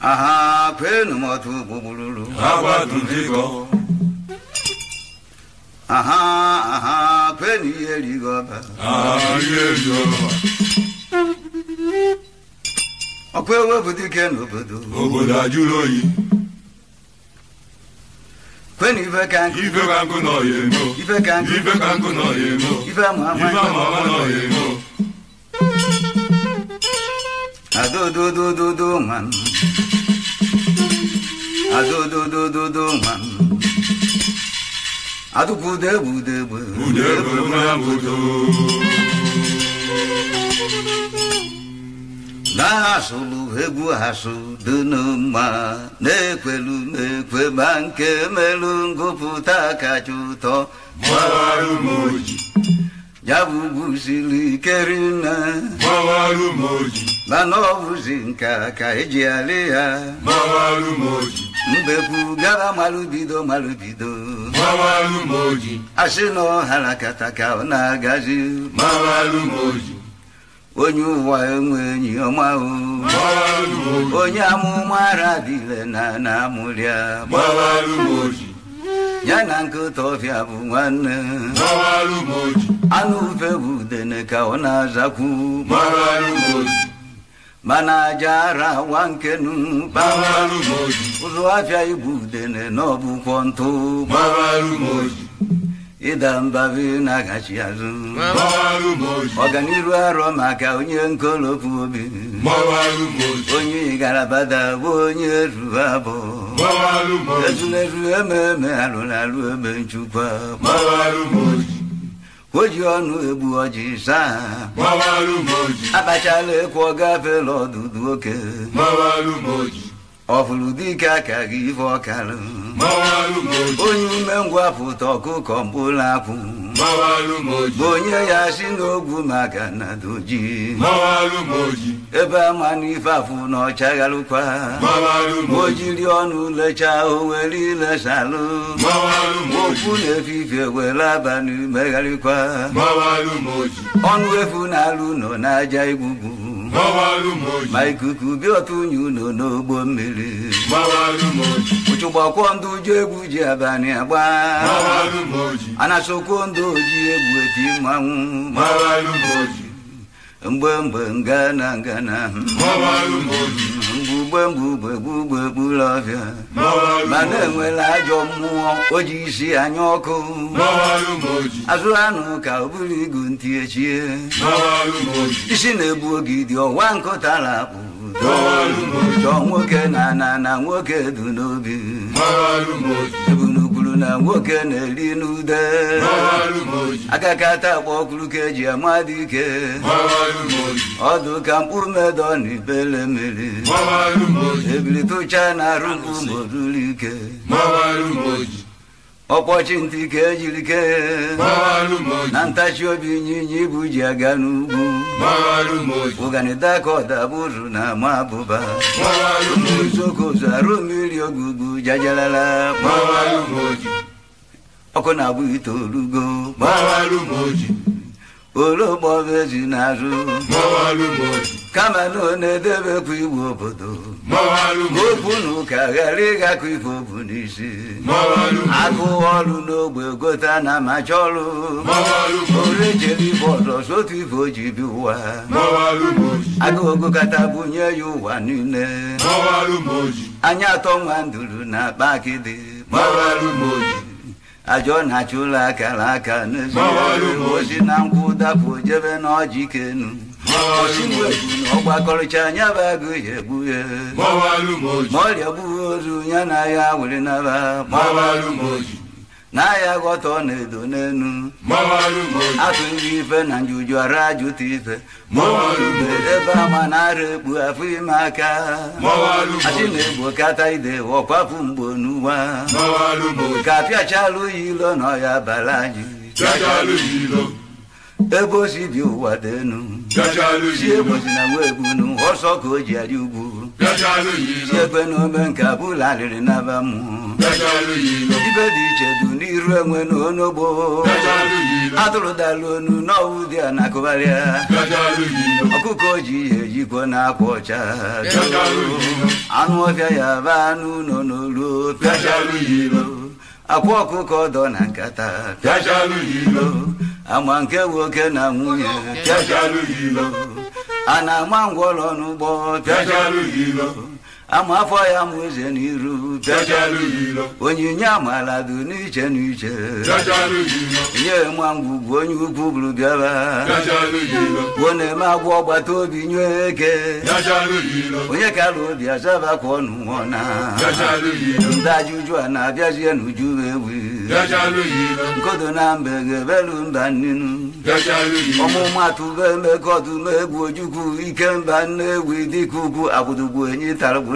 Aha, kwenu motu bubululu. Hawa tundigo. Aha, aha, kwenu yeri goba. Aha, yeri goba. Okwe wo budu kenu When you can go, you can go no you know. If I can, if I can go no you know. If I'm a if I'm a man no you know. do do do do do man. A do do do do do man. A do bu de bu de bu. Bu de bu na bu na egwu sụrụ egwu ha na-ekwelu mekwe ma nke merụ ngụpụta kacha ụtọ ya bụ bụziri ike mana ọ bụzi nka ka eji alị ya mbekwu gara malụbido malụbido asị na ọhara kata ka ọ na-agazi onye ụwa enweghị ọma onye amụma radile na na ya na nkịta ọfịa bụ nwanne anụ ufe bụ udene ka ọ na-azakwu mana aja ara wa nkenu ụzụ afịa igbu udene na ọbụkwọ ntụ ịda mba bụ na agachi azụ ọganiru arọ maka onye nkolopu obi onye igarabada bụ onye ruru abụ ezulezu ememe alụlalụ ebe nchukwa ji ọnụ egbu ọjị saa abachala ekwu gafela ọdụdụ oke ọfụrụ dike aka gị ife ọkarụ onye umengwụ apụta ọkụkọ mkpụrụ akwụ onye ya si n'ogwu maka na doji ebe ama n'ife afụ na ọchagharụkwa o jiri ọnụ lechaa o were ilesalụ okwu na-efife were abalị megharịkwa ọnụ efu na alụ nọ n'aja igbugbu ma ikuku bịa ọtụ unyi unu n'ogbo mmiri ụchụgbakwuo ndụ uju egwu ji abalị agba anasokwuo ndụ oji egwu eti mmanwụ mgbe mgbe ngana ngana mgbemgbe ụgbọ ugbegburụ ọbịa ma na-enwela ajọ mmụọ o ji isi anya ọkụ azụ anụ ka ọ bụrụ igu ntị echie isi na-egbu oge dị ọwa nkụtara apụ chọọ nwoke na na na nwoke dị n'obi nwoke na-eri n'ude akakata agba ọkụrụ ka eji ama ike. ọdụ ka mkpụrụ medo na ibele mmiri ebiritucha na arụ ike. ọkpọchi ntị ka ejiri kee na ntachi obi nyinya ibu ji aga n'ugwu ụganida ka na ama abụba uzokozu arụ mmiri ogugbu jajalala ọkụ na-abụ itoolugo ologboji na-arụ kama na ọ na-edebekwa iwu obodo okwu na ụka ghara ịgakọ ife obu n'isi agụ ọrụ n'ogbe gota na macha ọrụ orejere ibe ọzọ otu ife o ji bi ụwa agụ ogokata ya ụwa niile anya atọ nwa nduru na akpa akịdị ajọ na acha ụlọ akara aka n'ebe ozi na nkwụ dapụ jebe n'ọjị kenu ọgbakọrịcha anya bụ ya egbu ya ma ọ gbuo ozu ya na ya were naba n'ahịa ghọta ọ na-edo n'enu atụ nri ife na njuju ara ajụta ife ebe ama na-ara ekpu afọ ime aka achị na-egbo kata ide ọkwafu mgbo n'ụwa ka apịachalụ ya ilo na ọya bara anyị ebe osi bi ụwa dị enu si egbosi na nwa egbu ọsọ ka o ji adị ugwu igwe na ome nke abụla alịrị n'aba mmụọ ibe dị iche du n'iru enwe na onogbo atụrụ dala onu n'ọwụ dị a na-akụgharịa ji ihe jikwo na akwa ọcha anụ ọbịa ya ba anụ ụlọ n'oluo pịacharụ akwa ọkụkọ ọdọ na nkata pịacharụ ama nke nwoke na nwunye pịacharụ ana mangwolo n'ugbo pịajalụ ilo ama afọ ya mụ eze n'iru onyinye amala dị n'iche n'iche nye ma ngwugwu onye ukwu bụrụ bịara gwuo na-eme agwụ ọgbata obi nye eke onye kara obi azaba ka ọnụ nwụọ na ndị ajụjụ a na-abịazie n'uju ewu nkodo na mbe ga-ebelu mba nnenu ọmụmatụ be emekọdụ megwu ojukwu ike mba nne egwu dịka ugwu abụdugwu enyi taragwu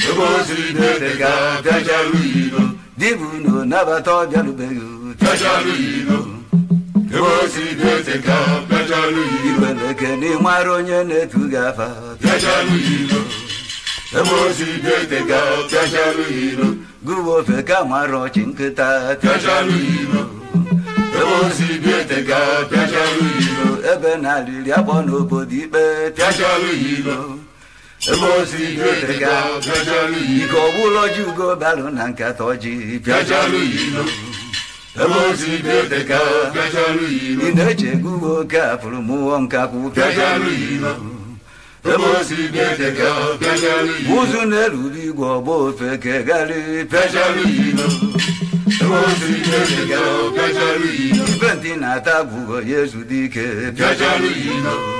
ebe dibụ unu nabata ọbịarubeghị bịarụbeghị bịajaru ilo ebe o n'ịmara onye na-etu gị afa ebe ga gụwa ofe ka mara ọchị nkịta bịajaru ebe na akpọ n'obodo ikpe Emosi Jodega, Piojalu Iko Wuloju Go Balu Nanka Toji, Piojalu Ilo. Emosi Jodega, Piojalu Ilo. Indeche Gugo Kapulu Muom Kaku, Piojalu Ilo. Emosi Jodega, Piojalu Ilo. Uzunelu Digo Bofe Kegali, Piojalu Ilo. Emosi Jodega, Piojalu Ilo. Ventina Tabugo Yesu Dike, Piojalu Ilo.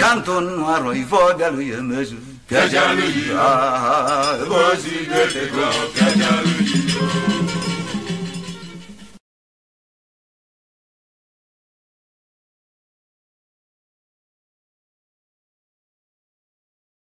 Canton noir, il faut galouille, mais je. Piajalouille, ah ah, ah, ah, ah, ah, ah, ah, ah, ah,